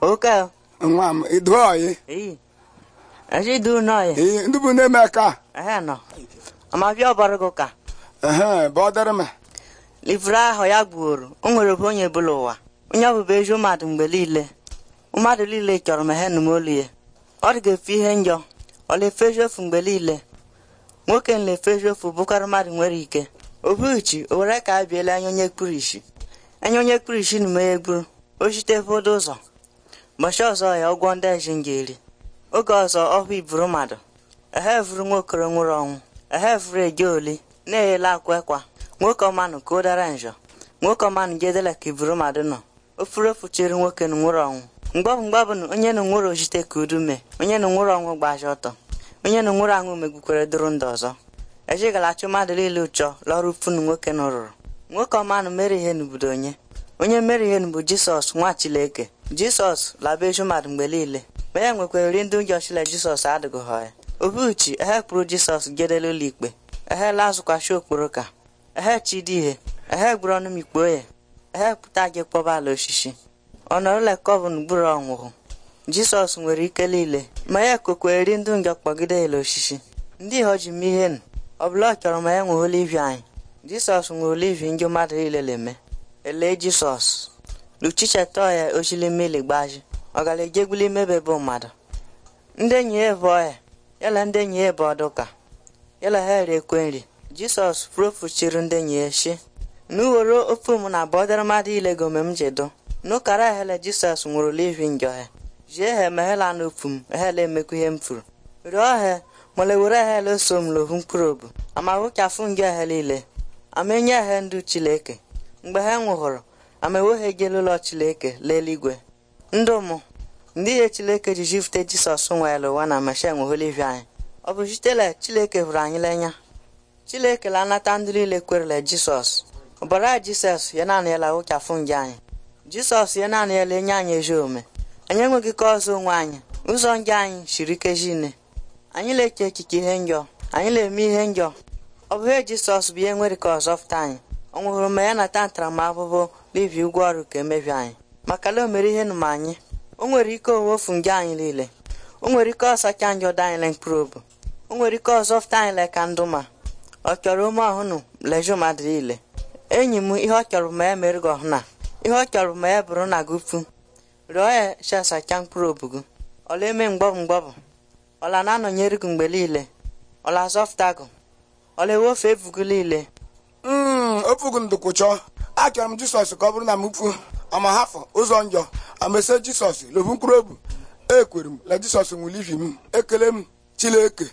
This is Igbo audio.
oke nwa m idu oyi eji idu n'oyi ee ndị bụ na-eme ka ehe nọ amabịa ọbara gị ụka ehe bụ ọdịrị m livre ahụ ya gbuoro o nwere bụ onye bụla ụwa onye ọ bụbụ ezi mmadụ mgbe niile mmadụ niile chọrọ m he m olu ya ọ dị ga-efe ihe njọ ọ na-efe mgbe niile nwoke na-efe eziokwu bụkarị mmadụ nwere ike obuchi o were ka a biela anya onye kpuru anya onye kpuru isi na m ya egburu o chite ụzọ Mbọchị ọzọ ya ụgwọ ndị eji m eri oge ọzọ ọhụ iburu mmadụ ehe vuru nwokoro nwụrụ ọnwụ ehevuru eje oli na-eyela akwa ekwa nwoke ọmanụ ka o dara njọ nwoke ọmanụ jedela ka iburu mmadụ nọ ofurofu chiri nwoke na nwụrụ ọnwụ mgbọbụ mgbọbụ na onye na nwụrụ ojite ka udu mee onye na nwụrụ ọnwụ gbaji ọtọ onye na nwụrụ anwụ megbukwere dụrụ ndụ ọzọ ejigala achụ mmadụ niile ụchọ lọrụ funu nwoke na rụrụ nwoke ọmanụ mere ihe n'obodo onye onye mere ihe bụ jisọs nwa chileke jisọs laba eju mmadụ mgbe niile ma ya nwekwara nri ndị ụjọ chile jisọs adịghị ha ya obiuchi ehe kpụrụ jisọs gedela ụlọ ikpe ehe lazụkwachi okporo ka ehe chidi ihe ehe gburu ọnụ m ikpe onye. ehe pụta gị kpọba ala osisi ọnọrụla kọvụn gburu ọnwụhụ jisọs nwere ike niile ma ya kokweri ndụ ngọ kpọgide ele osisi ndị ihe ji m ihe nụ ọ bụla ọ chọrọ ma ya nwe olivi anyị jisọs nwe olivi ndị mmadụ niile na-eme ele Jisọs Ọ gara luchichetoya imebe bụ mmadụ ndị enyi ya bụ ọya yala ndị enyi ya bụ ọdụka yala ha ekwe nri Jisọs profuchiri ndị enyi ya shi n'uwere ofu m na bọdara mmadụ ilego ome m jedo n'ụkara ahele Jisọs nwụrụ ihi njọ ha jie ha meghela n'ofu m ehele emekwu ihe m furu rịọ ha mole were ahele so m lohu mkpụrụ obu amahụka fụ njọ niile. amenye ha ndụ Chineke mgbe ha nwụhụrụ amaeweghegelụlọ chileke leeluigwe ndụ mụ ndị ihe chileke ji jifute jisọs ya ụwa na masha nweholivia anyị ọ bụ sitela chileke hụrụ anyị lenya chileke la anata ndị niile kwerele jisọs ọbara jisọs ya naanị ya lawụchafụ nje anyị jisọs ya naanị ya lenye anyị ezi ome. anyị enweghị ka ọzọ onwe anyị ụzọ nje anyị siri ike anyị na eke echiche ihe njọ anyị na-eme ihe njọ ọ bụ jisọs bụ ihe nwere ka ọzọ anyị ọ nwụrụ ma ya nata ntaramahụhụ n'ibi ụgwọ ọrụ ka emebi anyị maka na o mere ihe nụma anyị o nwere ike owefu nje anyị niile o nwere ike ọsacha anyị ọdọ anyị mkpụrụ obi o nwere ike ọzọfụta anyị le ka ndụ ma ọ chọrọ ome ọhụnụ leju mmadụ niile enyi m ihe ọ chọrọ ma ya mere gị ọhụna ihe ọ chọrọ ma ya bụrụ na gị upu rịọ ya chesacha mkpụrụ obi gị ọla eme mgbọbụ mgbọbụ ọla na-anọnyere gị mgbe niile ọla azọfụta gị ọla ewefu ebu gị niile ofugu chọọ achọrọ m jisọs ka ọ bụrụ na m mfu amahafụ ụzọ njọ amese jisọs lobu mkpụrụ obi ekwere m na jisọs nwụlivi m ekele m chileke